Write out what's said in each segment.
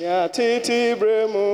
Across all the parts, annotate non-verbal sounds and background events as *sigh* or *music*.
nyatitibere mu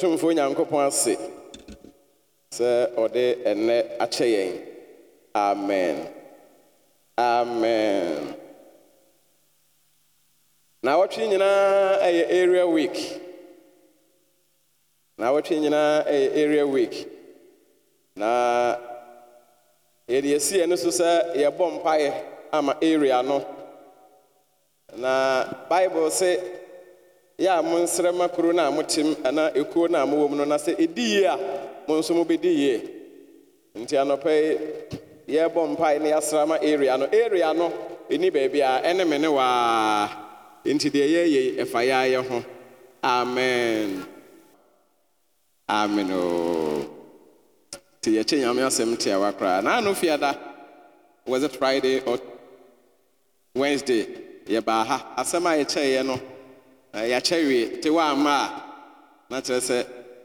ɔtomfoɔ nyankopɔn ase sɛ ɔde ɛnnɛ akyɛ yɛn amen amen na wɔtwe nyinaa ɛyɛ area week na wɔtwe nyinaa ɛyɛ area week na yɛde yɛsiɛ no so sɛ yɛbɔ ama area no na bible sɛ yɛ a mo nsrɛma kuro no a motem ana ekuo no a mowɔ mu no na sɛ ɛdi yie a mo nso mobɛdi yie nti anɔpɛ yi yɛrebɔ mpae ne yɛasrama area no area no ɛni baabiaa ɛne me ne waa nti deɛ yɛyei ɛfa yɛa yɛ ho amen amen o oh. nti yɛkye nyame asɛm tiawa koraa na ano fiada was it friday or wednesday yɛbaa ha asɛm a yɛkyɛeɛ no Eh, yɛakyɛ wie te wɔ ama a na kyerɛ sɛ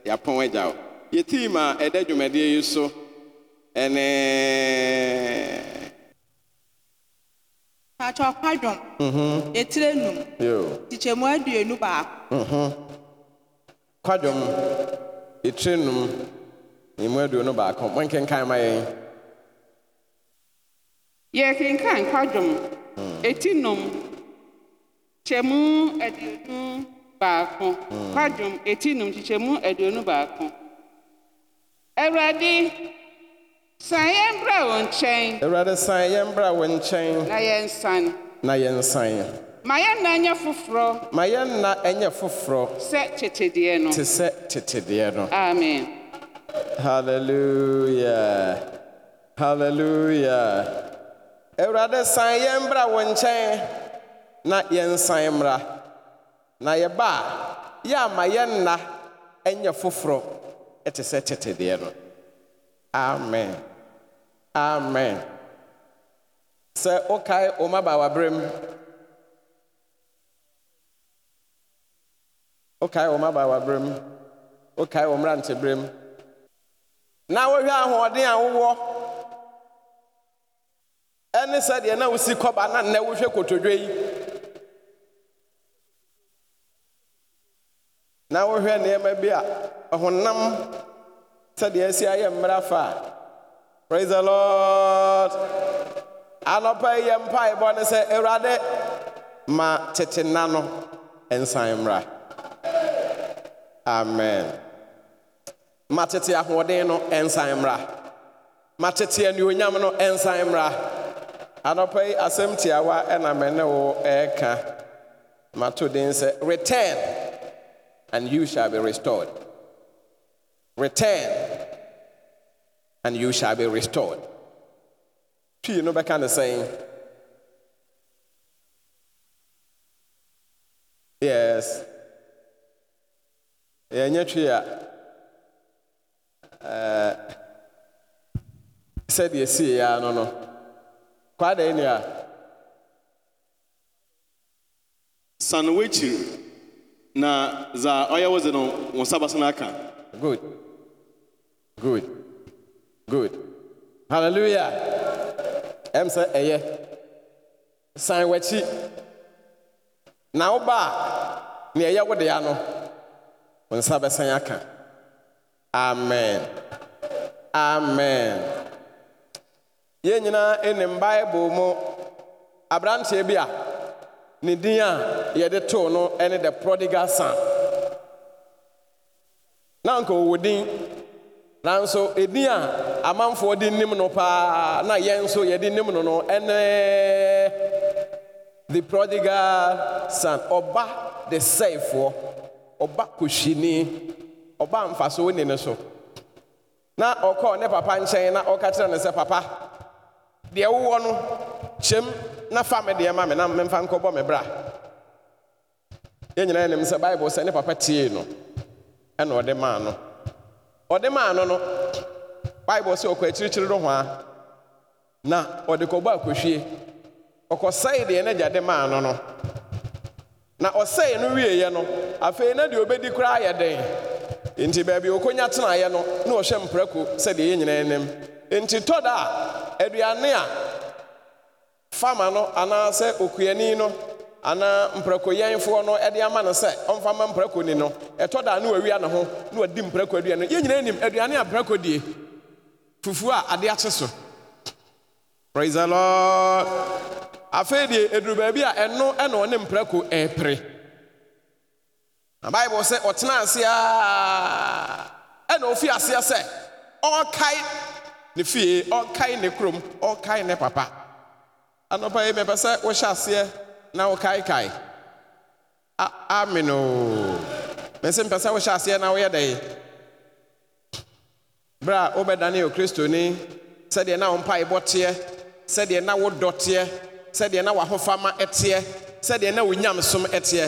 yɛapɔn agya wo yɛtiim a ɛda dwumadeɛ yi so ɛne pakyɛ ɔkwadwom mhm. ɛtire num tikyɛmu aduonu baako kwadwom mhm. ɛtire num ɛmu aduonu baako monkenkan ma yɛn yɛkenkan kwadwom hmm. ɛti num nkyɛmu aduonu baako kwadwom etinum num nkyɛmu aduonu baako awurade san yɛn bra wɔn nkyɛn awurade san yɛn bra wɔn nkyɛn na yɛn san na yɛn san. Ma yɛn na ɛnyɛ foforɔ. Ma yɛn na ɛnyɛ foforɔ. Sɛ tetedeɛ no. Te sɛ tetedeɛ no. Amen. Hallelujah. Hallelujah. Awurade san yɛn bra wɔn nkyɛn. na yɛnsan mmra na yɛba a yɛ ama yɛn nna ɛnyɛ foforɔ ɛte sɛ tetedeɛ no amen amen sɛ wokae wo mabaawaberɛ mu wokae wo mabaawaberɛ mu wokae wo mmeranteberɛ mu na wohwɛ ahoɔden a wowɔ ɛne sɛdeɛ na wosi kɔba na nnɛ wohwɛ kotodwe yi na wohwɛ nneɛma bi a ɔhonam sɛdeɛ esi ayɛ mmerɛ fa a praise the lord anɔpa yi yɛ mpaebɔ ne sɛ awurade ma tete nna no nsan mmra amen ma tete ahoɔden no nsan mmra ma tete anuonyam no nsan mmra anɔpa yi asɛm tiawa ɛna mɛ ne wo ɛreka mato den sɛ return and you shall be restored. Return, and you shall be restored. You know that kind of saying? Yes. Yeah, twee a uh, said yes. Yeah, no no kwa da ni na za oya wazano wasaba sanaka good good good halleluya em sɛ ɛyɛ eh, san w'akyi na woba a nea ɛyɛ wo dea no wo nsa bɛsan aka amen amen yɛn nyinaa ɛnim eh, bible mu aberanteɛ eh, bi a ne din a yɛde too no ne the prodigal son na anka ɔwɔ din nanso ɛdin a amanfoɔ de nim no paa na yɛn nso yɛde nim no no ɛne the prodigal son ɔba de sɛefoɔ ɔba kɔhyini ɔba mfasoɔ ni ne so na ɔkɔɔ ne papa nkyɛn na ɔka kyerɛ no sɛ papa deɛ wowɔ no kyɛm na fa me deɛ ma me na memfa nkɔbɔ me bra yɛn nyinaa sɛ bible sɛ ne papa tie no ɛna ɔde maa no ɔde maa no no bible sɛ ɔkɔ akyirikyiri no ho na ɔde kɔbɔ akɔhwie ɔkɔsɛe deɛ n'agya de maa no no na ɔsɛe no wieeɛ no afei na deɛ obɛdi koraa yɛ den nti baabi okonya tenaeɛ no na ɔhyɛ mprako sɛdeɛ yɛn nyinaa nim nti tɔ a aduane a fama no anaasɛ okuani no anaa mprakoyɛnfoɔ no ɛde ama no sɛ ɔmfa ma mprakoni no ɛtɔ da ne wawia ne ho na wadi mprako aduane no yɛn nyinaa nim aduane a mprako die fufuo a ade akye so praise the lord afei deɛ ɛduru baabi a ɛno ɛna ɔne mprako ɛɛpere na bible sɛ ɔtena ase a ɛna ɔfi aseɛ sɛ ɔrekae ne fie ɔrekae ne kurom ɔrekae ne papa anɔpa yi mɛpɛ sɛ wohyɛ aseɛ na wokaekae ameno mɛsɛ mpɛ sɛ wohyɛ aseɛ na woyɛ dɛn berɛ a wobɛdane yɛ kristoni sɛdeɛ na wo mpaebɔ teɛ sɛdeɛ na wodɔ teɛ sɛdeɛ na ɛteɛ sɛdeɛ na wonyamsom ɛteɛ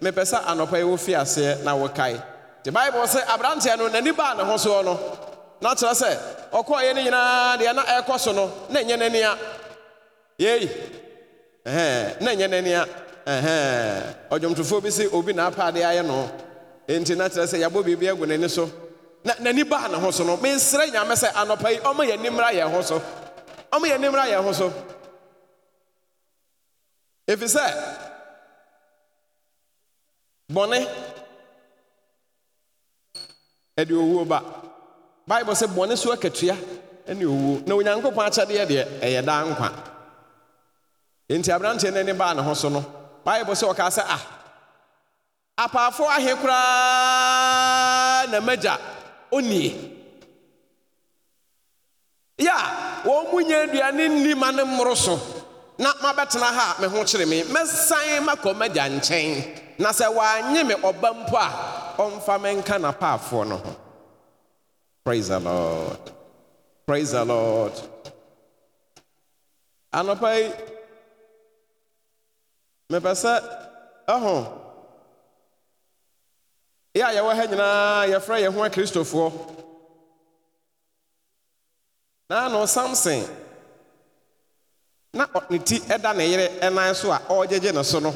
mepɛ sɛ anɔpa yi wofi aseɛ na wokae nti bible sɛ aberanteɛ no n'ani baa ne ho no na kyerɛ sɛ ɔkɔɔyɛ no nyinaa deɛ na ɛrekɔ so no na ɛnyɛ yei na nye n'ani a ɔdwomtofoɔ bi sị obi na apaadeɛ ayɛ no enti na kyerɛ sɛ yɛabɔ biribi agu n'ani so na n'ani baa ne ho so no mensrɛ nyame sɛ anɔpa yi ɔma yɛ nimra yɛn ho so ɔma yɛ nimra yɛn ho so ɛfiri sɛ bɔne ɛde owuo ba bible sɛ bɔne so akatua ɛne owuo na onyankopɔn akyɛdeɛ deɛ ɛyɛ daa nkwa enti aberanteɛ no ani baa ne ho so no bible sɛ ɔkaa sɛ a ah, apaafo ahe koraa na magya onie ya a wɔn mu nya aduane nni ma ne mmoro so na mabɛtena ha a me ho kyere me mɛsan makɔ magya nkyɛn na sɛ wɔanye me ɔba mpo a ɔmfa me nka na n'apaafoɔ no ho praise the lord praise the lord anɔpa yi mepɛ ɛho yɛ a yɛwɔ ha nyinaa yɛfrɛ yɛn ho akristofoɔ na no samson na ne ti ɛda ne yere ɛnan so a ɔregyegye ne so no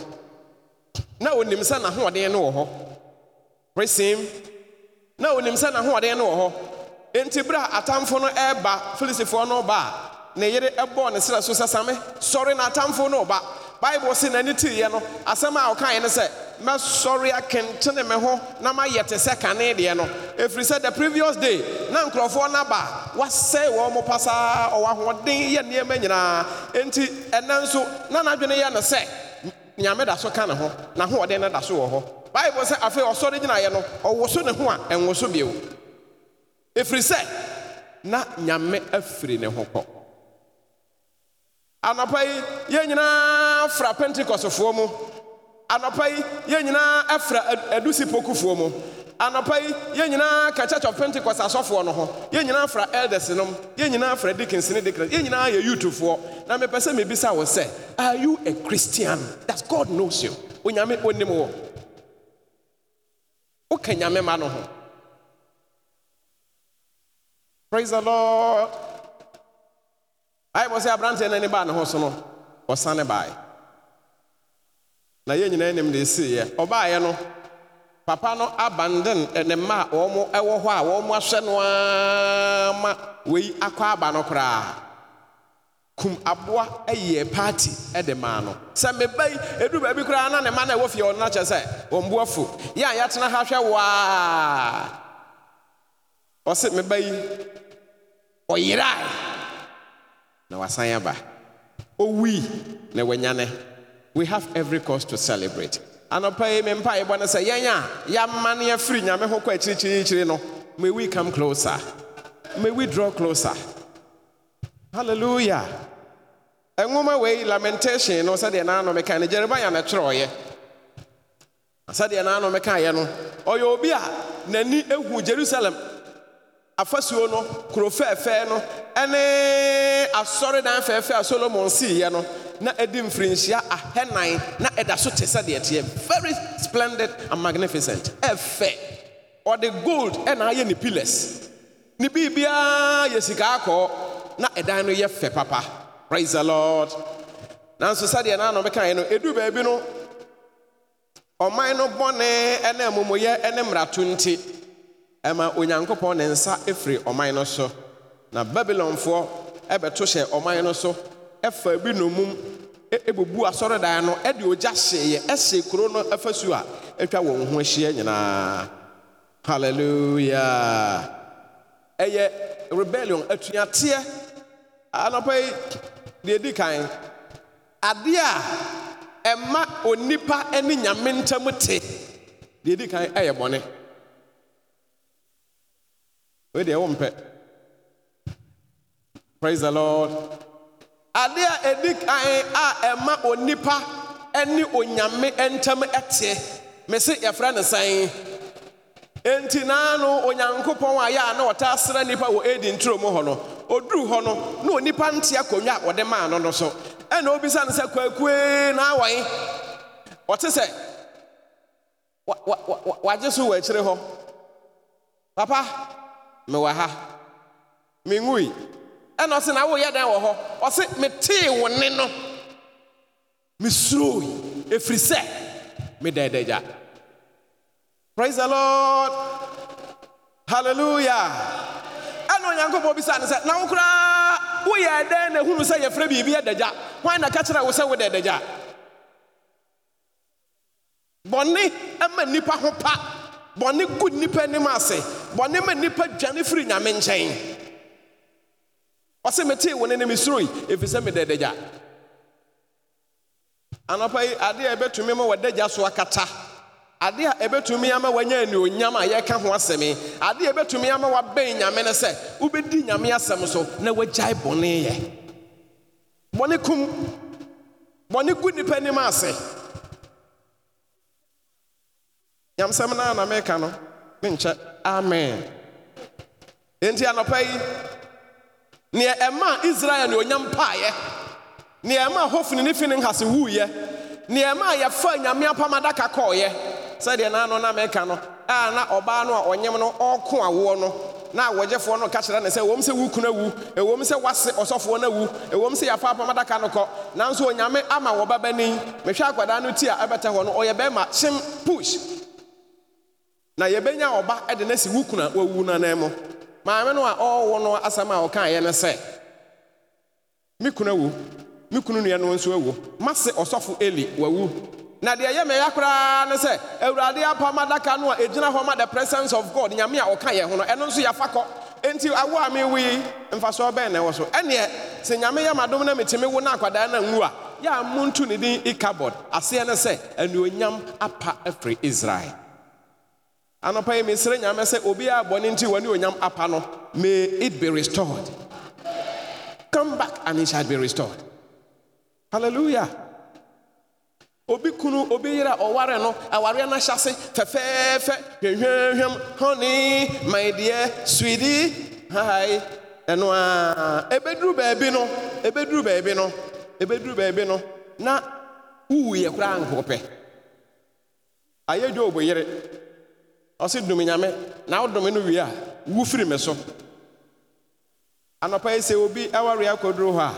na onim sɛ n'ahoɔden no wɔ hɔ resim na onim sɛ n'ahoɔden no wɔ hɔ enti bere a atamfo no ɛreba filisifoɔ no ba a ne yere ɛbɔɔ ne serɛ so sɛ same sɔre na atamfo no ba bible sɛ n'ani tiiɛ no asɛm a ɔkaeɛ ne sɛ mɛsɔre akentene me ho na mayɛ te sɛ kane deɛ no efiri sɛ the previous day na nkurɔfoɔ n'aba ba wasɛe wɔn mo pasaa ɔwɔ ahoɔden yɛ nneɛma nyinaa nti ɛnɛ nso na n'adwene yɛ no sɛ nyame da so ka ne ho n'ahoɔden no da so wɔ hɔ bible sɛ afei ɔsɔre gyinaeɛ no ɔwoso ne ho a ɛnwoso bio efiri sɛ na nyame afiri ne ho kɔ anɔpa yi yɛn nyinaa fra pentikɔsfoɔ mu anɔpa yi yɛn nyinaa ɛfra adusi pokufoɔ mu anɔpa yi yɛn nyinaa ka church of pentecost asɔfoɔ no ho yɛn nyinaa fra elders nom yɛn nyinaa fra deacons ne deacons yɛn nyinaa yɛ youthfoɔ na mepɛ sɛ mebisa wo sɛ are you a christian that god knows you onyame onim wɔ woka nyame ma no ho praise the lord ayɛbɔ sɛ aberanteɛ no ani baa ne ho so no ɔsane baeɛ na yɛn nyinaa anim de ɛsiiɛ ɔbaeɛ no papa no abanden ne mma a wɔn wɔ hɔ a wɔn ahwɛ no ara eh, eh, ma wei akɔ aba no koraa kum aboa yɛ paati de maa no sɛ meba yi edu baabi eh, koraa na ne mma na ɛwɔ fie ɔno akyɛ sɛ wɔn bo afu yɛ a yɛatena ha hwɛ waa ɔsɛ meba yi ɔyerae. na wasan aba owui na wanyane we have every cause to celebrate anɔpa yi me mpa yɛbɔ no sɛ yɛn a yɛama no yɛfiri nyame ho kɔ akyirikyirikyiri no may we come closer may we draw closer hallelujah nwoma wei lamentation no sɛdeɛ naano meka no jeremia na twerɛɔyɛ sɛdeɛ naano mekaeɛ no ɔyɛ obi a n'ani ehu jerusalem afasuo no kuro fɛɛfɛɛ no ɛne saw fɛɛfɛɛ a solomon siiɛ no na ɛdi mfirinhyia ahɛnan na ɛda so te sɛdeɛ teɛ very splendid and magnificent ɛfɛ ɔde gold ɛna ayɛ ne pillars ne biribiara yɛ sika akɔɔ na ɛdan no yɛ fɛ papa praise the lord nanso sɛdeɛ na mekaeɛ no ɛduru baabi no ɔman no bɔne ɛne amumuyɛ ɛne mmarato nti ɛma onyankopɔn ne nsa ɛfiri ɔman no so na babilonfoɔ ɛbɛto hyɛ ɔman no so ɛfa bi nomum ɛbubu e, asɔredan no ɛde ogya hyeeɛ ɛhyee kuro no afasu a atwa wɔn ho ahyia nyinaa hallelujah. ɛyɛ rebellion atuateɛ anɔpa yi deɛ di kan adeɛ a ɛma onipa ne nyame ntam te deɛ di kan ɛyɛ bɔne wei deɛ mpɛ praise the lord adeɛ a ɛdi kan a ɛma onipa ɛne onyame ntam ɛteɛ me se yɛfrɛ ne sɛn enti naa no onyankopɔn a yɛ na ɔta asra nipa wɔ edi nturo mu hɔ no ɔduru hɔ no na onipa nte akonnwa a wɔde maa no no so ɛna obisa no sɛ kwakue na awɔe ɔte sɛ wagye so wɔ akyire hɔ papa mewɔ ha menwui ɛna ɔse na woyɛ dan wɔ hɔ ɔse metee wo ne no mesuroi ɛfiri sɛ praise the lord hallelujah ɛna onyankopɔn bisa ne sɛ na wo koraa woyɛ dɛn na hunu sɛ yɛfrɛ biribi adagya hwan na ka kyerɛ wo sɛ wodɛ adagya bɔne ma nnipa ho pa bɔne gu nnipa anim ase bɔne ma nnipa dwane firi nyame nkyɛn ɔse metee wo ne ne mesuroi ɛfiri sɛ meda adagya anɔpa yi adeɛ a ɛbɛtumi ma wɔdagya so akata adeɛ a ɛbɛtumi ama wanya anuonyam a yɛka ho asɛm adeɛ a ɛbɛtumi ama wabɛn nyame ne sɛ wobɛdi nyame asɛm so na wagyae bɔne yɛ bɔne kum bɔne gu nnipa anim ase nyamsɛm no na meka no menkyɛ amen enti anɔpa yi neɛ ɛma israel ne onyam paeɛ neɛ ɛma hofni ne fini nhase wuiɛ neɛ ɛma yɛfa nyame apam adaka kɔɔyɛ sɛdeɛ naano na meka no a na ɔbaa a ɔnyem no awoɔ no na wɔgyefoɔ no ka kyerɛ ne sɛ sɛ sɛ wase ɔsɔfoɔ no sɛ apam adaka no kɔ nanso onyame ama mehwɛ akwadaa no ti a ɛbɛtɛ hɔ no ɔyɛ bɛrima kyem push na yɛbɛnya ɔba de no si wo kuna wawu nanan mu maame no a ɔwɔ no asɛm a ɔkaeɛ ne sɛ me kuna wu me kunu nua no nso awu mase ɔsɔfo eli wawu na deɛ ɛyɛ mɛya koraa ne sɛ awurade apam adaka no a ɛgyina hɔ ma the presence of god nyame a ɔka yɛ ho no ɛno nso yɛafa kɔ enti awo a mewu yi mfasoɔ bɛn na ɛwɔ so ɛneɛ sɛ nyame yɛ madom na metumi wo na akwadaa no nwu a yɛ a montu ne din ikabod aseɛ ne sɛ anuonyam apa afiri israel anɔpa yi mesrɛ nyame sɛ obiara bɔne nti wɔne onyam apa no may it be restored come back and it shall be restored hallelujah obi kunu obi yere a ɔware no awareɛ no ahyɛ fɛfɛɛfɛ hwɛhwɛhwɛm honey my dear sweetie ɛno a ɛbɛduru baabi no ɛbɛduru baabi no ɛbɛduru baabi no na wuwuyɛ koraa nkɔpɛ ayɛ dwo obɔ ɔse dom nyame na wodome no wie a wu firi me so anɔpa yi sɛ obi awareɛ akɔduru hɔ a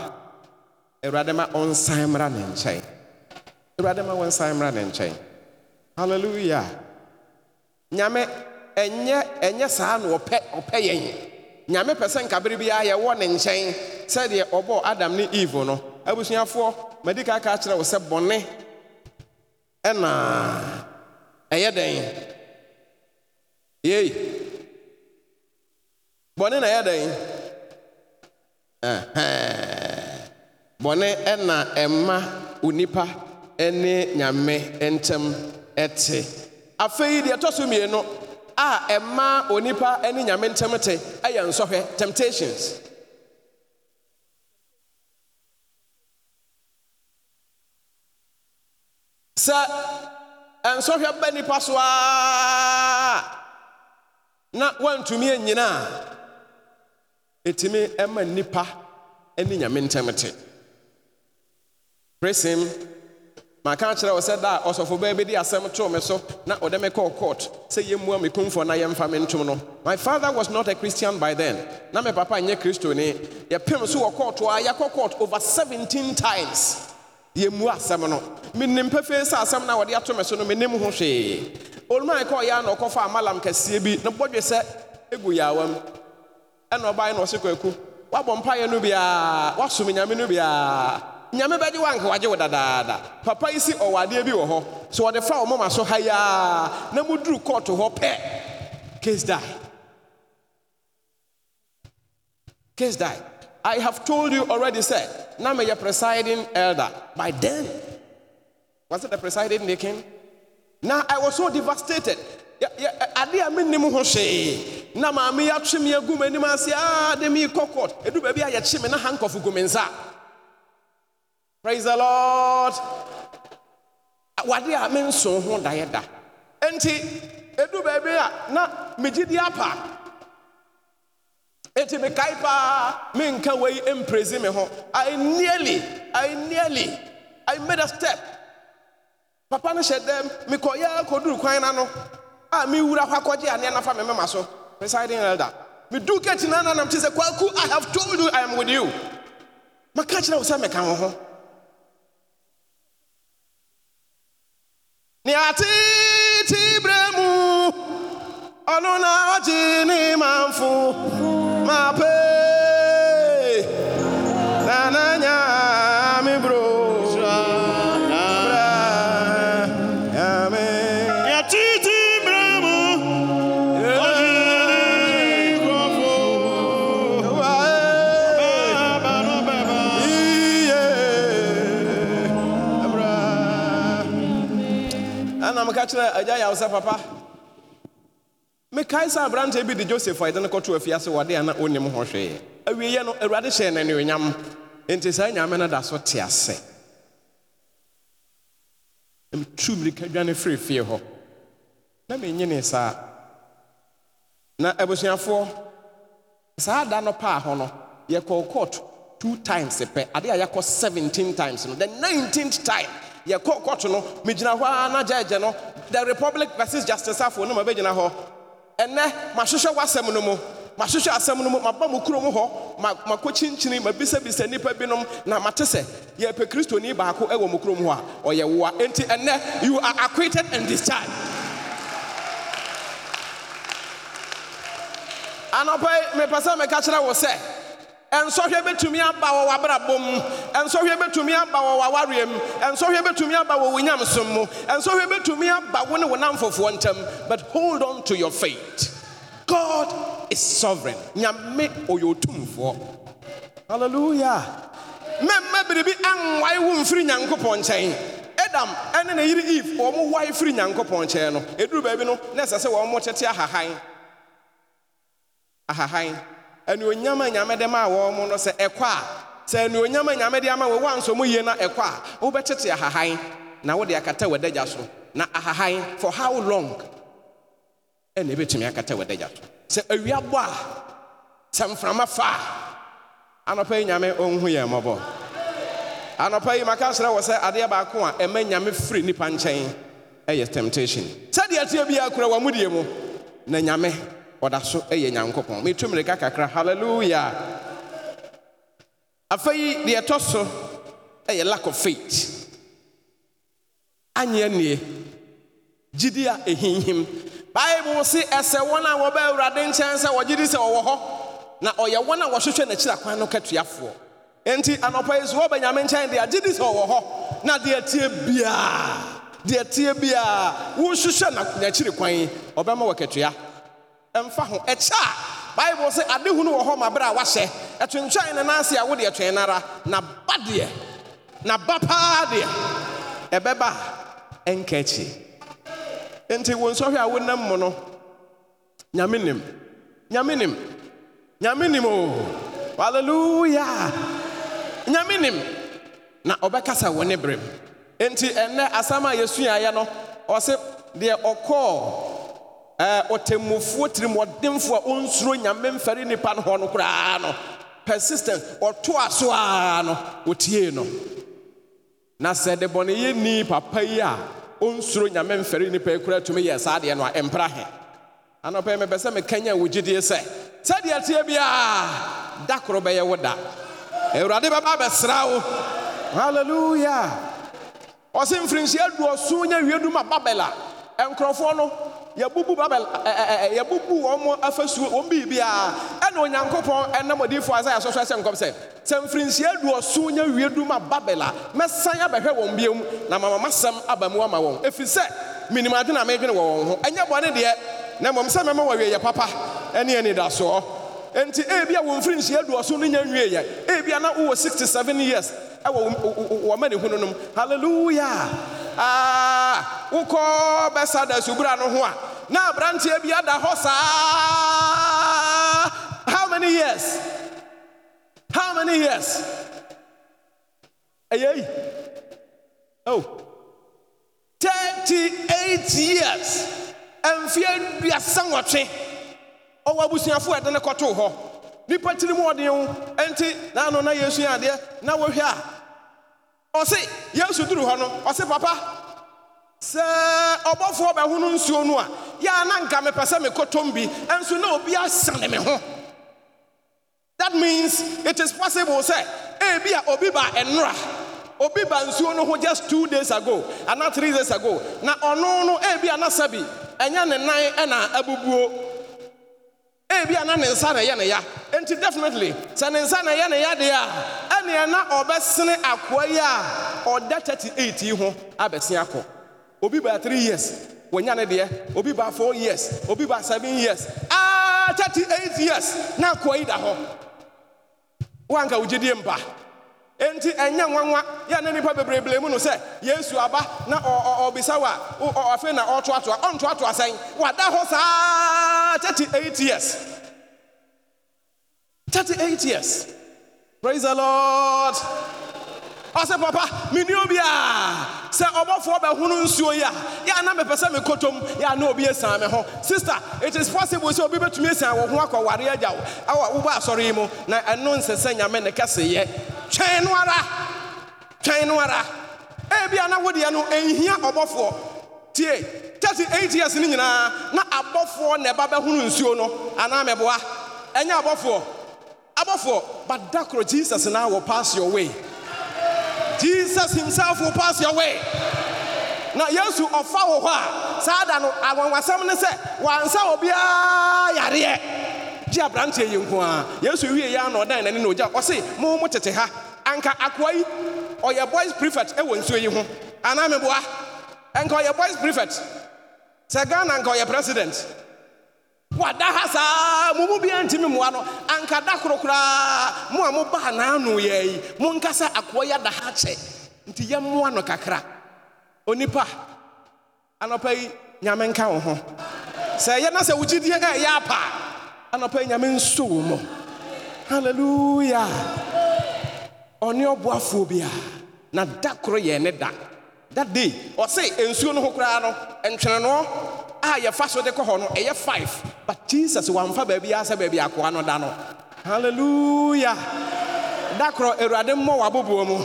awurade ma ɔnsan mmra ne nkyɛn awurade ma wɔnsan mmra ne nkyɛn halleluya nyame ɛnyɛ ɛnyɛ saa na ɔpɛ ɔpɛ yɛn nyame pɛ sɛ a biara yɛwɔ ne nkyɛn sɛdeɛ ɔbɔɔ adam ne eve no abusuafoɔ madi ka aka kyerɛ wo sɛ bɔne ɛna ɛyɛ dɛn yei bɔne na ɛyɛ dɛn bɔne ɛna ɛma onipa ɛne nyame ntɛm ɛte afei deɛ ɛtɔ so mmienu a ɛma onipa ɛne nyame ntɛm te ɛyɛ nsɔhwɛ temptations sɛ nsɔhwɛ bɛ nipa so a na woantumi anyina a ɛtumi ɛma nnipa ne nyame ntɛm te presim maka akyerɛ wo sɛ da a ɔsɔfo baa bɛdi asɛm too me so na ɔde me kɔɔ court sɛ yɛmmua me na yɛmfa me ntom no my father was not a christian by then na me papa nyɛ kristoni yɛpem so wɔ court a yɛkɔ court over 17 times yɛmmu asɛm no menim pɛfei sɛ asɛm no a wɔde ato me so no menim ho hwee olumaa kɔ ɔyɛ na ɔkɔfa amalam kɛseɛ bi na bɔdwe sɛ ɛgu yaawa m ɛna ɔbaeɛ na ɔse kwaku woabɔ mpaeɛ no nke woasom nyame no nyame bɛgye wagye wo dadaada papa yi si ɔwadeɛ bi wɔ hɔ wɔde fa wɔ moma so na muduru kɔɔto hɔ pɛ case die case die I have told you already, Said, Now may presiding elder. By then, was it the presiding deacon? Now I was so devastated. ade a mennim ho hwee na maame yɛatwe me agu m'anim ase ah, a de me kɔ court ɛdu baabi a yɛkye me na hankɔfo gu me praise the lord What a menso mean, daeɛ da enti ɛdu baabi a na megye di apa Enti mekae paa menka wei mpresi me ho. I nearly, I nearly, I made a step. Papa no hyɛ dɛm mekɔyɛ kɔduru kwan na no a mewura hɔ akɔgye aneɛ nafa me mema so. Presiding elder. Medu gate na nanam te sɛ kwaku I have told you I am with you. Maka kyerɛ wo sɛ meka wo ho. Nea tete berɛ mu ọdún náà wọ́n ti ní máa ń fún máa pé nànányà mi bro. ɛna meka kyerɛ agya yɛ wo sɛ papa mekae kaisa aberante bi de joseph a yɛde kɔto afiase wɔde a na ɔnim ho hwee awieɛ no awurade hyɛɛ no anuonyam enti saa nyame no da so te ase mtu mmirika dwane firi hɔ na menyine saa na abusuafoɔ saa da no paa hɔ no yɛkɔɔ court two times pɛ ade a yɛkɔ 17 times no the 19th time yɛkɔɔ court no megyina hɔ ara na gyagye no the republic versus justice afoɔ no ma bɛgyina hɔ ɛnɛ mahwehwɛ w'asɛm no mu mahwehwɛ asɛm no mu maba mu kurom hɔ makɔkyinkyini mabisabisa nnipa binom na mate sɛ yɛpɛ kristoni baako ɛwɔ mu kurom hɔ a ɔyɛ woa enti ɛnɛ you are acquitted and discharged anɔpɛ mepɛ sɛ meka kyerɛ wo sɛ And so he nsɔhwɛ bɛtumi aba wɔ w'abrabom nsɔhwɛ bɛtumi aba And so he nsɔhwɛ bɛtumi aba wɔ wo nyamesom mu nsɔhwɛ bɛtumi aba wo ne wo namfofoɔ ntam but hold on to your faith god is sovereign nyame ɔyɛ otumfoɔ hallelujah mmɛmma biribi anwae wo mfiri nyankopɔn nkyɛn adam ɛne ne yere eve wɔn wae firi nyankopɔn nkyɛn no ɛduru baabi no na ɛsɛ sɛ wɔn mo tete ahahan ahahan anuonyam a nyame de maa wɔn mo no sɛ ɛkɔ a sɛ anuonyam a nyame de ama wɔn wansɔ mu yie na ɛkɔ a wobɛtete ahahan na wode akata w'adagya so na ahahan for how long ɛna ebɛtumi akata w'adagya so sɛ awia bɔ a sɛ mframa fa a anɔpa yi nyame ɔnhu yɛn mmɔbɔ anɔpa yi maka srɛ wɔ sɛ adeɛ baako a ɛma nyame firi nipa nkyɛn ɛyɛ temptation sɛdeɛ teɛ bi akura wɔ mu die mu na nyame ɔda so yɛ nyankopɔn metu mmirika kakra halleluya yi deɛ ɛtɔ so yɛ lack of faith anyɛ nnie gyidi a ɛhinhim bible se ɛsɛ wɔn a wɔbɛ awurade nkyɛn sɛ wɔgye di sɛ wɔwɔ hɔ na ɔyɛ wɔn a wɔhwehwɛ n'akyiri akwan no katuafoɔ nti anɔpa yi so wɔbɛ nyame nkyɛn deɛ agye di sɛ wɔwɔ hɔ na deɛ tie biara deɛ tie biara wohwehwɛ n'akyiri kwan ɔbɛma wɔ katua ɛmfa ho ɛkyɛ a bible sɛ adehunu wɔ hɔ ma berɛ a wahyɛ ɛtwentwɛn ne nanse a wode ɛtwɛn n'ara na ba deɛ na ba paa deɛ ɛbɛba a ɛnka akyi enti wo nsɔhwɛ a wonam mu no nyame nim nyame nim nyame nim o hallelujah nyame nim na ɔbɛkasa wɔ ne berɛ mu enti ɛnnɛ asɛm a yɛsuaeɛ no ɔse deɛ ɔkɔɔ Eh, ɔtɛmmufoɔ tiri mɔdemfoɔ a ɔnsuro nyame mfɛre nnipa no hɔ no koraa no persistence ɔto a so ar no ɔtiee no na sɛ de bɔne yɛ nni pa pa yi a ɔnsuro nyamemfɛre nnipa yi koraa atumi yɛɛ saa adeɛ no a ɛmpra hɛ ana ɔpɛyi mɛbɛ sɛ mekanya wɔ gyidie sɛ sɛdeɛ ateɛ bi a da koro bɛyɛ wo da awurade bɛba bɛsra wo alleluya ɔse mfiri nhyiɛ adoɔsoo nya awie duma babele a ɛnkurɔfoɔ no Yabubu babel ɛɛ eh, eh, eh, yɛbubu wɔn afasuo wɔn biribiara ɛna onyankopɔn ɛnam odiifo asaia sɔsɔ ɛsɛ nkɔm sɛ sɛ mfirinhyia duɔso nyɛ wie dum a babel a mɛsan abɛhwɛ wɔn biom na mama masɛm aba mu ama wɔn efi sɛ adi na mɛdwene wɔ wɔn ho ɛnyɛ bɔne deɛ na mmom sɛ mɛma wɔ wieyɛ papa ɛne anidasoɔ nti ebia wɔn mfirinhyia duɔso no nyɛ wie yɛ ebia na wowɔ sixty seven years ɛwɔ wɔma ne hunu nom halleluya aa ah, wokɔ bɛsa da subura no ho a na aberanteɛ bi ada hɔ saa how many years how many years ɛyɛi oh thirty-eight years mfeɛ duasa nwɔtwe ɔwɔ abusuafoɔ ɛde ne kɔtoo hɔ nnipa tiri mu ɔden wo ɛnti na ano na yɛsua adeɛ na wɔhwɛ a ɔse yesu duru hɔ no ɔse papa sɛ ɔbɔfoɔ bɛho no nsuo no a yɛa na nka mepɛ sɛ mekɔtɔm bi ɛnso na obi asane me ho that means it is possible sɛ ebi a obi ba ɛnora obi ba nsuo no ho just two days ago ana three days ago na ɔno no ebi a nasa bi ɛnyɛ ne nan ɛna abubuo ebi a na ne nsa na ɛyɛ ne ya nti definitely sɛ ne nsa na ɛyɛ ne ya deɛ a nea na ɔbɛsene akoa yi a ɔda 38 yi ho abɛse akɔ obi baa 3 years wɔnya ne deɛ obi baa 4 years obi baa 7 years aa ah, 38 years na akoa yi da hɔ woanka wogyedie mpa enti ɛnyɛ nwanwa yɛ ne nnipa bebreblee mu no sɛ yesu aba na ɔbisa wo a na ɔtoatoa ɔntoatoa sɛn wada hɔ saa 38 years 38 years praise the lord ɔsɛ papa obi a sɛ ɔbɔfoɔ bɛhono nsuo yi a yɛ na mepɛ sɛ mekɔtɔm yɛ na obi asian me ho sister it is possible sɛ obi bɛtumi asian wɔ ho akɔware agya wo ɛwɔ wobɔ asɔre na ɛno nsɛ sɛ nyame ne kɛseyɛ twɛn no ara twɛn no ara ebia na wodeɛ no ɛnhia years nyinaa na abɔfoɔ na ɛba bɛhono nsuo no anaa mɛboa ɛnyɛ abɔfoɔ Abafo, but Dakro, Jesus and I will pass your way. Jesus himself will pass your way. now yesu ɔfa wɔ hɔ a saa da no anwanwasɛm ne sɛ wansa obiara yareɛ gye aberanteɛ yi nko a yesu wie yi ana ɔdan n'ani na ogya ɔse mo mo tete ha anka akwai yi ɔyɛ boys prefect Ewo nsuo yi ho anaa meboa anka ɔyɛ boys prefect sɛ ghana anka ɔyɛ president wada ha saa mo mu bia ntimi mmoa no anka da koro koraa mo a mobaa n'ano yɛ yi monka sɛ akoa yɛ da ha kyɛ nti yɛmmoa no kakra onipa anɔpa yi nyame nka wo ho sɛ ɛyɛ na sɛ wogyidiɛ a ɛyɛ apa anɔpa yi nyame nso wo mɔ halleluya ɔne ɔboafoɔ bi a na da koro yɛ ne da that day ɔse nsuo no ho koraa no ntwenenoɔ a yɛfa so de kɔ hɔ no ɛyɛ five but jesus wamfa baabi a sɛ baabi akoa no da no hallelujah dakorɔ korɔ awurade mmɔ w'aboboɔ mu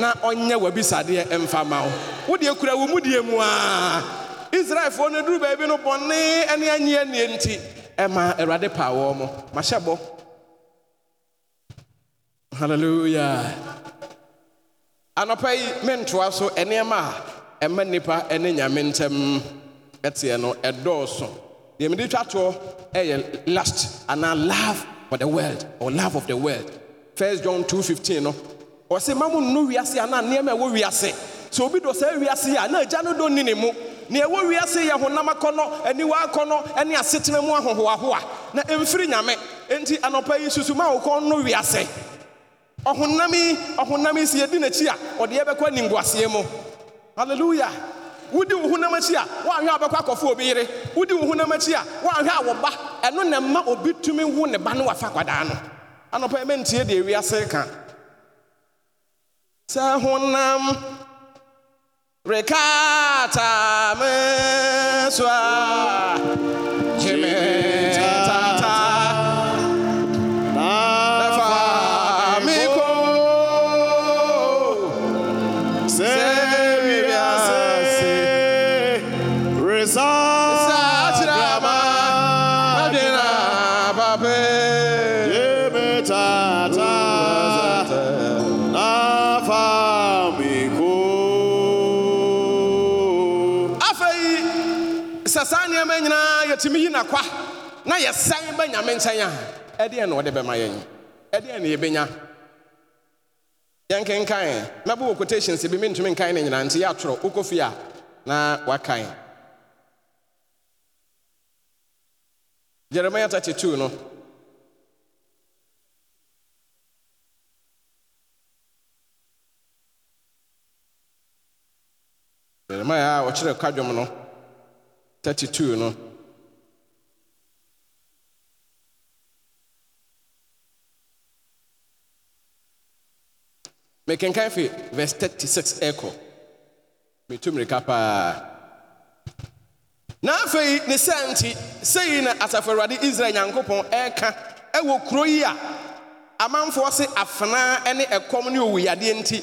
na ɔnyɛ w'abisadeɛ mfa ma wo wodeɛ kura wo mu deɛ mu a israelfoɔ no duru baabi no bɔne ne anyi annie nti ɛma awurade paa wɔ mo mahyɛ bɔ hallelujah anɔpa yi mentoa so nneɛma a ɛma nnipa ne nyame ntɛm ɛteɛ no ɛdɔɔso deɛ mede twa toɔ ɛyɛ lust anaa love for the world or love of the world first john 2:15 no ɔsɛ ma mo nno wiase anaa nneɛma ɛwɔ wiase sɛ obi dɔ saa wiase a na agya no dɔ ni ne mu nea ɛwɔ wiase yɛ honam akɔnɔ aniwa akɔnɔ ne asetena mu ahohoahoa na ɛmfiri nyame enti anɔpa yi susu ma wokɔ no wiase ɔhonam yi ɔhonam yi sɛ yɛdi n'akyi a ɔde yɛbɛkɔ aninguaseɛ mu hallelujah wudi wo na akyi a woanhwɛ a wobɛkɔ akɔfo obi yere wodi wo honam akyi a woanhwɛ a ɛno na mma obi tumi wo ne ba no wafa kwadaa no anɔpa mɛntie deɛ wiase ka sɛ honam rekata me so a yɛsan bɛ nyame nkyɛn a ɛdeɛn na ɔde bɛma yɛn ɛdeɛn na yɛbɛnya yɛnkenkan mɛbɔ wɔ quotations bi mentumi nkan ne nyinaa nti yɛatwerɛ wokɔ fie na wakan Jeremiah 32 no Jeremiah, a ɔkyerɛ kwadwom no 32 no mekenkan fi verse 36 ɛkɔ metu mmirika paa na afei ne sɛ nti sei na asafo awurade israel nyankopɔn ɛreka ɛwɔ kuro yi a amanfoɔ se afenaa ne ɛkɔm ne owuyadeɛ nti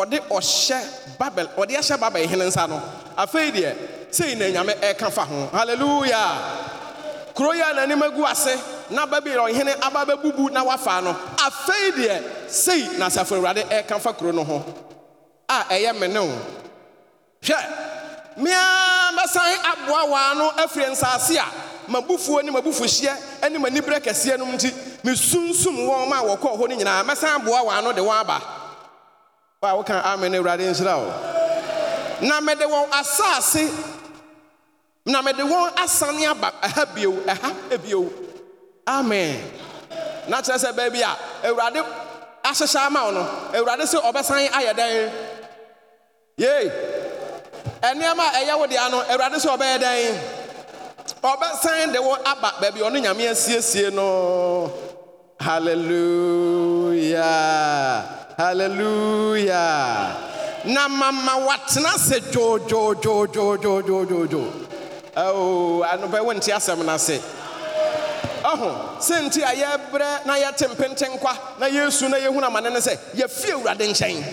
ɔde ɔhyɛ babel ɔde ahyɛ babel hene nsa no afei deɛ sei na nyame ɛreka fa ho hallelujah kuro yi a n'anim agu ase na babylon hene aba bɛbubu na wafa no afei deɛ sei na asafo awurade ɛreka fa kuro no ho a ɛyɛ me hwɛ mea mɛsan aboa waa no afiri nsaase a mabufuo ne mabufuhyeɛ ne m'aniberɛ kɛseɛ nom nti mesunsum wɔn ma wɔkɔɔ hɔ no nyinaa mɛsan aboa waa no de wɔn aba wo a woka amen awurade nhyira wo na mede wɔn asase na mede wɔn asane aba ɛha bio ɛha bio amen na kyerɛ sɛ baabi a awurade ahyehyɛ ama wo no awurade sɛ ɔbɛsan ayɛ dɛn ɛnneɛma a ɛyɛ wo dea no awurade sɛ ɔbɛyɛ dɛn ɔbɛsan de wo aba baabi ɔno nyame asiesie no hallelujah hallelujah na mama watena sɛ dwoodwoodwoodwoodwoodwoodwoodwoo ɔho sɛ nti a yɛbrɛ na yɛte mpenten kwa na yɛsu na yɛhunu amane ne sɛ yɛfie awurade nkyɛn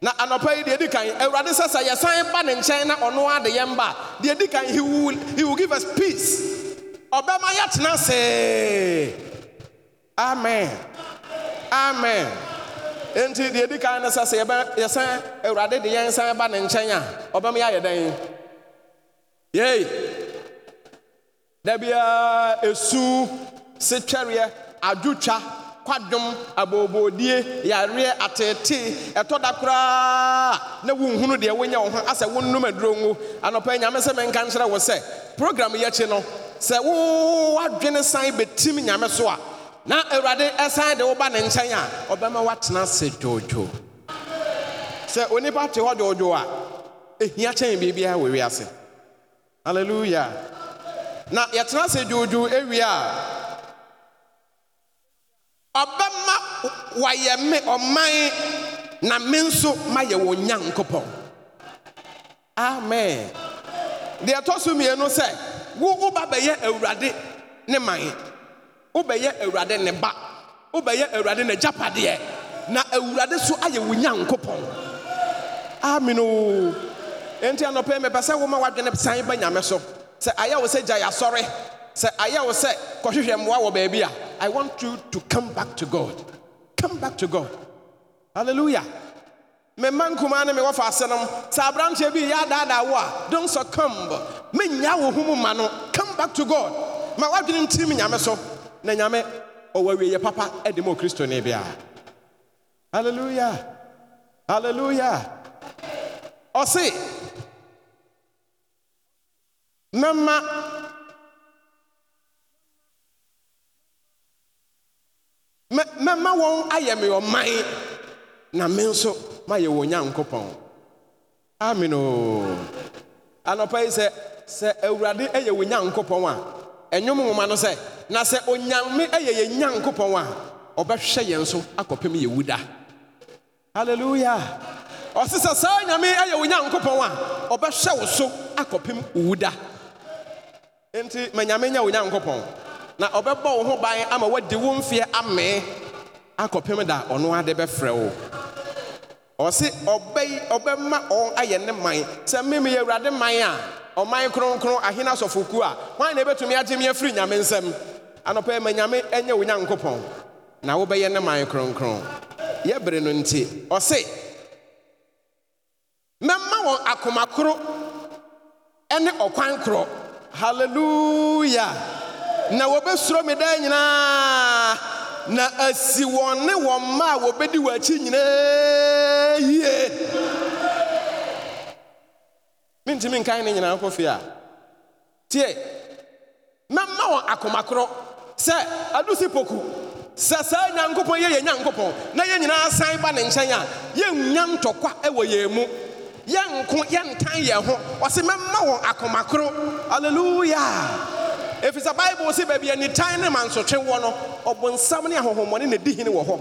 na anɔpa yi deɛ di kan awurade sɛ sɛ yɛsan ba ne nkyɛn na ɔno ade yɛn ba deɛ di kan he will he will give us peace ɔbɛma yɛtena see amen amen enti deɛ di kan no sɛ sɛ yɛbɛ yɛsan awurade de yɛn san ba ne nkyɛn a ɔbɛma yɛayɛ dɛn yei. Dabia esu setwɛreɛ adwotwa kwadwom abobodie yareɛ atete ɛtɔ da koraa na wonhunu deɛ wonyɛ wo ho asɛ wonnom aduro ngo anɔpa nyame sɛ menka nkyerɛ wo sɛ program yɛkyi no sɛ wowadwene san bɛtim nyame so a na awurade ɛsan de woba ne nkyɛn a ɔbɛma woatena ase dwoodwoo sɛ onipa te hɔ dwoodwoo a ɛhia kyɛn biribiara wɔ wiase hallelujah na yɛtena ase dwoodwoo awie a ɔbɛma wɔayɛ me ɔman na me nso mayɛ wɔ nyankopɔn amen deɛ ɛtɔ so mmienu sɛ wo woba bɛyɛ awurade ne man wobɛyɛ awurade ne ba wobɛyɛ awurade n'agyapadeɛ na awurade so ayɛ wo nyankopɔn ameno enti anɔpɛ mepɛ sɛ woma w'adwene sane ba nyame so sɛ ayɛ wo say Jaya, sorry. sɛ ayɛ wo say, kɔhwehwɛ mmoa baby. I want you to come back to god come back to god hallelujah me man kumaa me wɔfa ase nom sɛ aberanteɛ bi yɛ adaadaa don't succumb Me wo humu mu come back to god ma woadwene ntirim nyame so na nyame ɔwɔ awieyɛ papa de ma kristo ne hallelujah hallelujah ɔse mɛma mɛma wɔn ayɛ me ɔman na me nso mayɛ wɔ nyankopɔn amen o anɔpa yi sɛ sɛ awurade yɛ wɔ nyankopɔn a ɛnwom nwoma no sɛ na sɛ onyame yɛ yɛ nyankopɔn a ɔbɛhwɛ yɛn so akɔpem yɛ wuda hallelujah ɔse sɛ saa nyame yɛ wɔ nyankopɔn a ɔbɛhwɛ wo so akɔpem wuda nti ma nyame nya wo na ɔbɛbɔ wo ho ban ama woadi wo mfeɛ amee akɔpem da ɔno ade bɛfrɛ wo ɔse ɔbɛyi ɔbɛma ɔn ayɛ ne man sɛ meme yɛ awurade man a ɔman kronkron asɔfokuo a hwan na ɛbɛtumi agye me afiri nyame nsɛm anɔpɛ nyame wo nyankopɔn na wobɛyɛ ne man kronkron yɛbere no nti ɔse mɛma wɔn akomakoro ne ɔkwan haleluya na wɔbɛsuro me dan nyinaa na asi wɔn ne wɔn mma a wɔbɛdi wɔn akyi nyinaa yie mentumi nkan ne nyinaa nkɔ fie a tie mɛma wɔn akomakorɔ sɛ adu si poku sɛ saa nyankopɔn yɛ yɛ nyankopɔn na yɛn nyinaa san ba ne nkyɛn a yɛnnya ntɔkwa wɔ yɛn mu yɛnko yɛntan yɛn ho ɔse mɛma wɔn akomakoro aleluya ɛfiri sɛ bible si baabi anitan ne mansotwe wɔ no nsam ne ahonhommɔne na di hene wɔ hɔ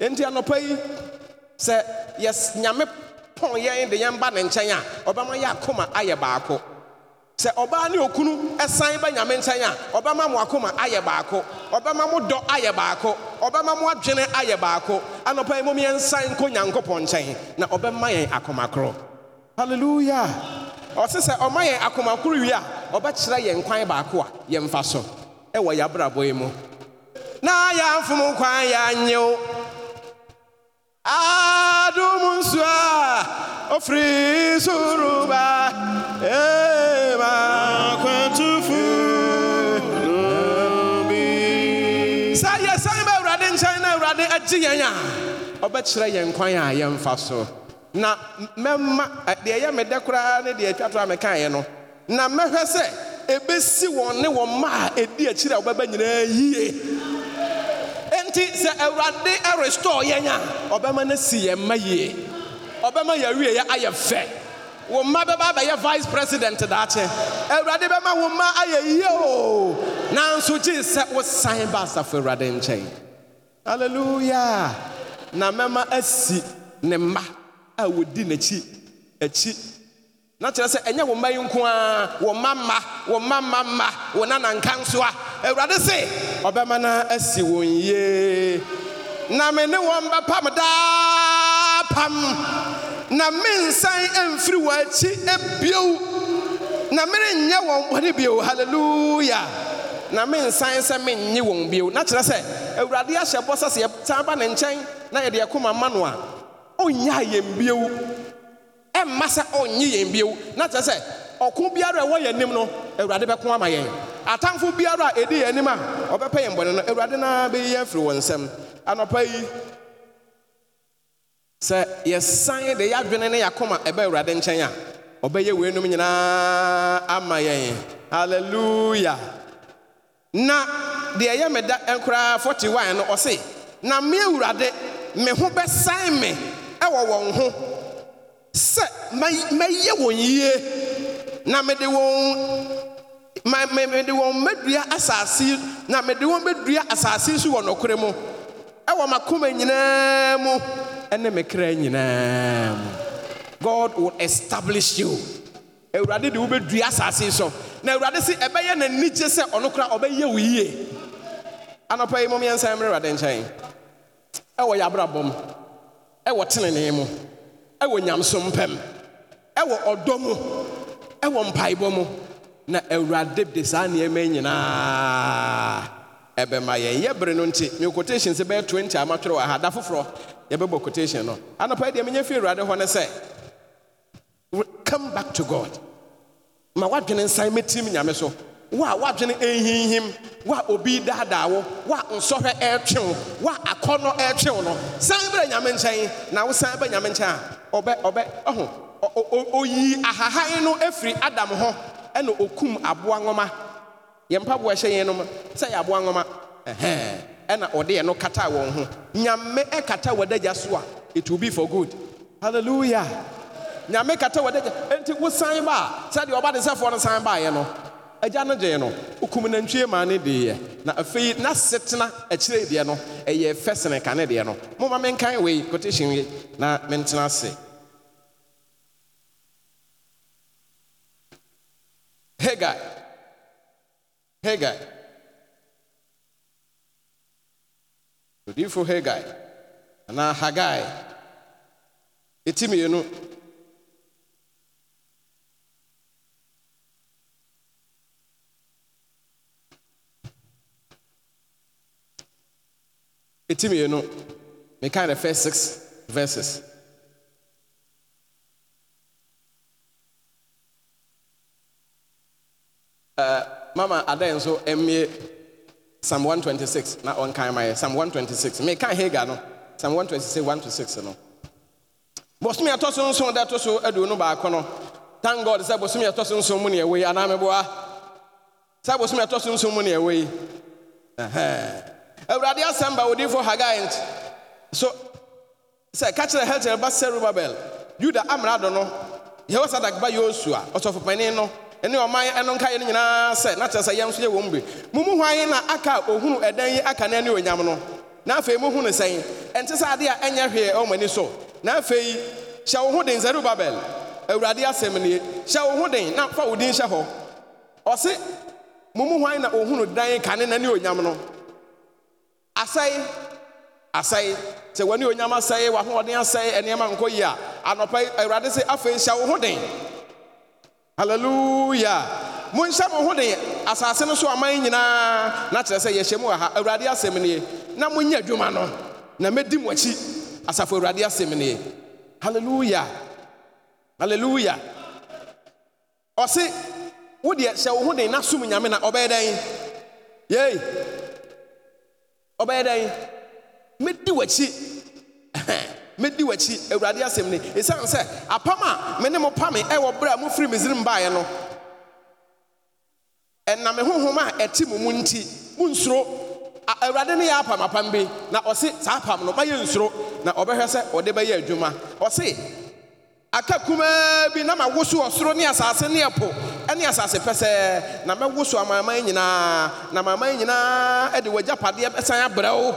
enti anɔpa yi sɛ yɛs nyame pɔn yɛn de yɛn ba ne nkyɛn a ɔbɛma yɛ akoma ayɛ baako sɛ ɔbaa ne okunu ɛsan ba nyame nkyɛn a ɔbɛma mo akoma ayɛ baako ɔbɛma mo dɔ ayɛ baako ɔbɛma mo adwene ayɛ baako anɔpa yi momiɛnsan nkɔ nyankopɔn nkyɛn na ɔbɛma yɛn akomakorɔ halleluya ɔse sɛ ɔma yɛn akomakoro wie a ɔbɛkyerɛ yɛn kwan baako a yɛn yɛmfa so ɛwɔ yɛabrabɔ yi mu na yɛamfom kwan yɛanyew adom nsu a ɔfiri soro ee. awurade agye yɛn a ɔbɛkyerɛ yɛn kwan a yɛmfa so na mɛma deɛ ɛyɛ me koraa ne deɛ atwa to a mekaeɛ no na mɛhwɛ sɛ ɛbɛsi wɔn ne wɔn mma a ɛdi akyiri a wɔbɛba nyinaa yie ɛnti sɛ awurade ɛrestore yɛn a ɔbɛma no si yɛn mma yie ɔbɛma yɛawieɛ ayɛ fɛ wo mma bɛba abɛyɛ vice president daakye awurade bɛma wo mma ayɛ yie o nanso gye sɛ wosan ba asafo awurade nkyɛn hallelujah na mɛma asi ne mma a wɔdi n'akyi akyi na kyerɛ sɛ ɛnyɛ wo mma yi nko ara wɔ mma mma wɔ mma mma mma wɔ nananka nso a awurade se ɔbɛma no asi wɔn yie na me ne wɔn bɛpam daa pam na mensan mfiri wɔ akyi ebio na merenyɛ wɔn bɔne bio hallelujah na mensan sɛ mennye wɔn bio na kyerɛ sɛ awurade ahyɛ bɔ sɛ sɛ yɛsan ba ne nkyɛn na yɛde yɛkoma ma no a ɔnnyɛ yɛn bio ɛmma sɛ ɔnnye yɛn bio na kyerɛ sɛ ɔko biara a ɛwɔ yɛn anim no awurade bɛko ama yɛn atamfo biara a ɛdi yɛn anim a ɔbɛpɛ yɛn bɔne no awurade na bɛyi yɛn firi wɔn nsam anɔpa yi sɛ yɛsan de yɛadwene ne yɛakoma ɛbɛ awurade nkyɛn a ɔbɛyɛ weinom nyinaa ama yɛn hallelujah na deɛ yɛ me da nkoraa eh, 41 no ɔse na me awurade me ho bɛsan me ɛwɔ wɔn ho sɛ mɛyɛ wɔn yie na mede wɔn mede wɔn mɛdua asase na mede wɔn mɛdua asase nso wɔ nokorɛ mu ɛwɔ makoma nyinaa mu ɛne me nyinaa mu god will establish you awurade de wobɛdua asase so na awurade se ɛbɛyɛ n'anigye sɛ ɔno kora ɔbɛyɛ wo yie anɔpa yi momeɛnsan mmerɛ awurade nkyɛn ɛwɔ yɛ abrabɔ m ɛwɔ tenenee mu ɛwɔ nyamsom pɛm ɛwɔ ɔdɔ mu ɛwɔ mpaebɔ mu na awurade de saa nneɛma nyinaa ɛbɛma yɛn yɛ bere no nti me quotation sɛ bɛyɛ 20 amatwerɛ wɔ ha da foforɔ yɛbɛbɔ quotation no anɔpa yi deɛ menyɛ fii awurade hɔ ne sɛ come back to god ma wadwene nsan mɛtim nyame so Wa a wadwene ɛnhinhim wo obi daadaa wo wa a nsɔhwɛ ɛretwe wo wa a akɔnnɔ ɛretwe wo no san bɛrɛ nyame nkyɛn na wo san bɛ nyame nkyɛn a ɔbɛ ɔbɛ ɔho oyi ahahan no afiri adam ho ɛna okum aboa nwoma yɛn mpaboa ɛhyɛ yɛn no mu sɛ yɛ aboa nwoma ɛhɛn ɛna ɔde yɛn no kata wɔn ho nyame ɛkata wɔ adagya so a it will be for good hallelujah. nyame kata wɔde enti wosan ba a sɛdeɛ ɔba de sɛfoɔ no san baeɛ no agya no gyee no wokum nantwie maa ne deeɛ na afei na setena akyire deɛ no ɛyɛ fɛ sene ka ne deɛ no moma menkan wei kotehyɛn yi na mentena ase Hagai. Hagai. Odinfo Hagai. Anaa Hagai. Etimi yi no ɛti mmienu meka the first six verses uh, mama adan nso me psalm 126 na ɔnkan ma yɛ psalm 126 Me meka hagar no psalm 126 1 to 6 you no bosome ɛtɔ so nson da ɛtɔ so aduonu baako no thank god sɛ bosome ɛtɔ so nson mu ne ɛwɔ yi anaa meboa sɛ bosome ɛtɔ so nson mu ne ɛwɔ awurade asɛm ba wodifo hagai nti so sɛ ka kyerɛ helter ba serubabel yuda amrado no yɛwɔ ba yosua ɔsɔfopanin no ɛne ɔman ɛno nkaeɛ no nyinaa sɛ na kyerɛ sɛ yɛn nso yɛ wɔn bi mu mu hwan na aka ohunu ɛdan yi aka na ɛne onyam no na afei mu hunu sɛn ɛnte sɛ adeɛ a ɛnyɛ hwee ani so na afei hyɛ wo ho den awurade asɛm nie hyɛ wo na fa wo din hyɛ hɔ asɛe asɛe sɛ w'ani onyam asɛe w'ahoɔden asɛe nneɛma nkɔ yi a anɔpa awurade sɛ afei hyɛ wo ho den hallelujah monhyɛ mo ho den asase no so aman nyinaa na kyerɛ sɛ yɛhyɛ mu wɔ ha awurade asɛm nie na monyɛ adwuma no na mɛdi mo akyi asafo awurade asɛm nie hallelujah hallelujah ɔse wodeɛ hyɛ wo ho den na som nyame na ɔbɛyɛ dɛn yei ɔbɛyɛ dɛn mɛdi w'akyi *laughs* mɛdi w'akyi awurade asem ni ɛsiane sɛ apam a me ne mo pame ɛwɔ berɛ a mofiri misrim baeɛ no ɛnam honhom a ɛte mo mu nti monsuro awurade ne yɛ apam apam bi na ɔse saa apam no mayɛ nsoro na ɔbɛhwɛ sɛ ɔde bɛyɛ adwuma ɔse aka kumaa bi na ma mawoso ɔsoro ne asase ne ɛpo ɛne asase pɛsɛɛ na mɛwo so amanaman nyinaa na amanaman nyinaa de w'agyapadeɛ bɛsan abrɛ wo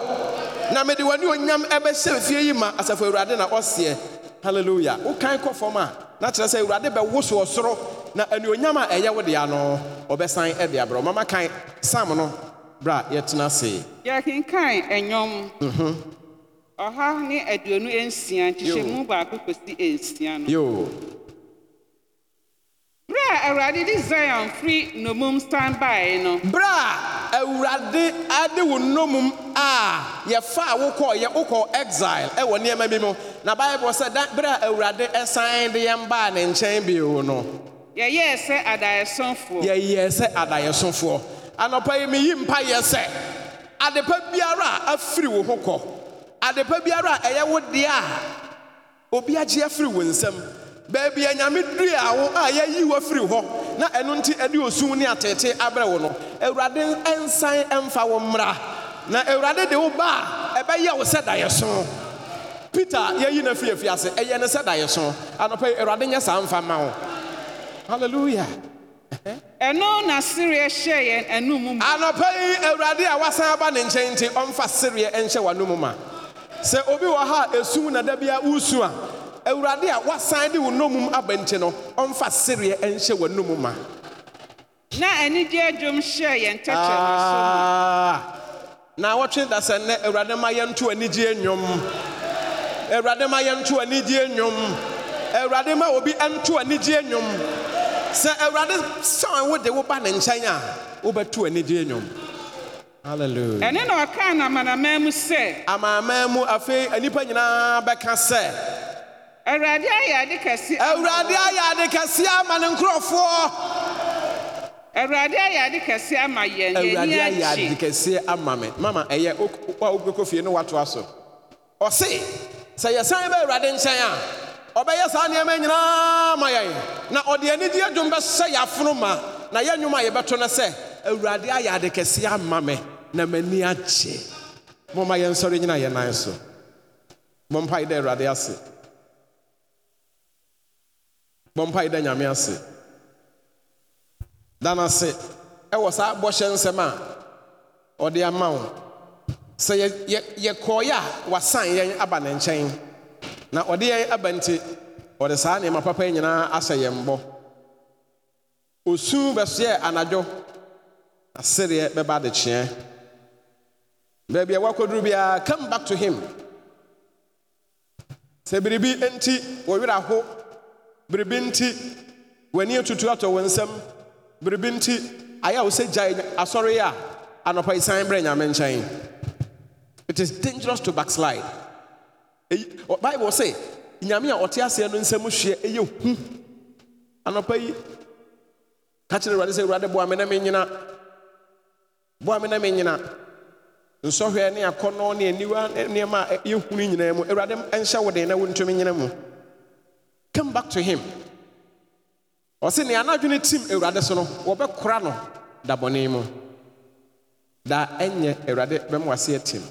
na mede w'ani onyam ɛbɛhyɛ fie yi ma asafo awurade na ɔseɛ hallelujah wokan kɔ fam a na kyerɛ sɛ awurade bɛwo so ɔsoro na anuonyam a ɛyɛ wo dea no ɔbɛsan de abrɛ mama kan sam no bra yɛtena ase yɛkenkan ɛnwom mhm. ɔha ne aduonu nsia nkyehyɛ mu baako kɔsi nsia no Bra awurade di Zion firi n'omum stand by no. Bra awurade ade wo n'omum a yɛfa a wokɔ exile ɛwɔ nneɛma bi mu na Bible sɛ da bra awurade ɛsan de yɛn baa ne nkyɛn bio no. Yɛyɛɛ sɛ adayɛsɔnfoɔ. Yɛyɛɛ sɛ adayɛsɔnfoɔ. Anɔpa yi mi yi mpa yɛ sɛ adepa biara a afiri wo ho kɔ adepa biara a ɛyɛ wo deɛ a obi agye afiri wo nsam. baabi a nyame duri a wo a yɛayi wafiri hɔ na ɛno nti ɛde osum ne atete abrɛ wo no awurade nsan ɛmfa wo mmra na awurade de wo ba a ɛbɛyɛ wo sɛ daeɛso peter yɛyi no afi ase ɛyɛ ne sɛ daeɛso anɔpa yi awurade nyɛ saa mfa ma wo halleluya ɛno na sereɛ hyɛ yɛn anum ma anɔpa yi awurade a wasan aba ne nkyɛn nti ɔmfa sereɛ nhyɛ w'anom ma sɛ obi wɔ ha a esum na da bi wosu a awurade a wasan de wo nomum aba nkyɛ no ɔmfa sereɛ ɛnhyɛ w'anom ma na anigye dwom hyɛ yɛn tɛkyɛ ah! na wɔtwe da sɛ nnɛ awurade ma yɛnto anigyeɛ nnwom awurade ma yɛnto anigyeɛ nnwom awurade ma obi ɛnto anigyeɛ nnwom sɛ awurade sɔn wo de wo ba ne nkyɛn a wobɛto anigyeɛ nnwom Hallelujah. ɛne na ɔkaa na amanaman mu sɛ amanaman mu afei nnipa nyinaa bɛka sɛ awurade ayɛ ade kɛse awurade ayɛ ade kɛse ama ne nkurɔfoɔ awurade ayɛ ade kɛse ama yɛn awurade ayɛ ade kɛse ama mama ɛyɛ wa fie sɛ yɛsan bɛ awurade nkyɛn a ɔbɛyɛ saa nneɛma nyinaa yɛn na ɔde anigyeɛ dwom bɛhyɛ yɛ ma na yɛ nnwom yɛbɛto no sɛ awurade ayɛ ade kɛse ama na m'ani agye momma yɛnsɔre nyina yɛ nan so dɛ awurade ase bɔmpa da nyame ase da no ase ɛwɔ saa bɔhyɛ nsɛm a ɔde ama wo sɛ wasan yɛn aba ne nkyɛn na ɔde yɛn aba nti ɔde saa nneɛma papa nyinaa ahyɛ yɛn bɔ osu bɛsoɛ anadwo asereɛ bɛba adekyeɛ baabi a wakɔduru biara come back to him sɛ biribi wɔwerɛ biribi nti w'ani atutu atɔ wɔ nsam biribi nti ayɛ a wo sɛ gyae asɔre a anɔpa yi brɛ nyame nkyɛn it is dangerous to backslide eyi Baibu say nyame a ɔte aseɛ no nsɛm hwɛ ɛyɛ hu anɔpa yi ka kyerɛ awurade sɛ awurade boa me na menyina boa me na menyina nsɔhwɛ ne akɔnnɔ ne aniwa nneɛma a yɛhunu nyinaa mu awurade nhyɛ wo den na wontumi nyina mu Come back to him. Ɔsi nea anadwene tim Awurade so a wɔbɛkora no da bɔne mu. Da ɛnyɛ Awurade bɛm wase atim.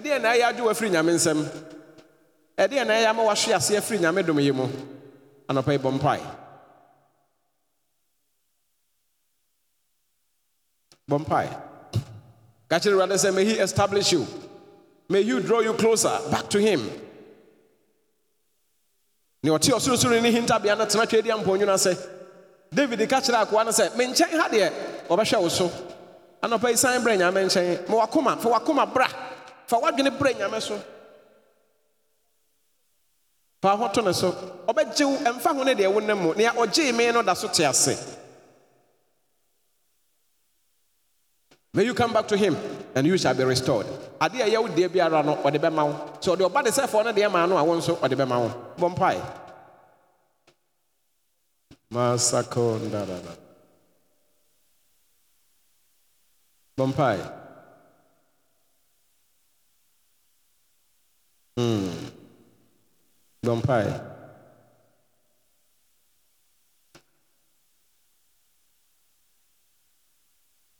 team. na ɛyɛ adwo are Nyame a Ɛdeɛ na ɛyɛ ama wahwe ase a Nyame dom yi mu? Anɔpa yi a mpae. Bɔ mpae. Ka kyerɛ Awurade sɛ, may he establish you. May you draw you closer back to him ne ɔte ɔsorosoro ne hintabea no tena twɛdi ampɔnwunu ase david ka kyerɛ akoa no sɛ me nkyɛn ha deɛ ɔbɛhwɛ wo so anɔpa yi san brɛ nyame nkyɛn ma wakoma fa wakoma bra fa wadwene brɛ nyame so fa ho to ne so ɔbɛgye wo ɛmfa ho ne deɛ wonam mu nea ɔgyee me no da so te ase may you come back to him and you shall be restored. Adeɛ ɛyɛ wo deɛ biara no ɔde bɛma wo. Sɛ ɔde ɔba de sɛfoɔ no deɛ maa no a wo nso ɔde bɛma wo. Bɔ mpae. Masako ndarara. Bɔ mpae. Hmm. Bɔ mpae.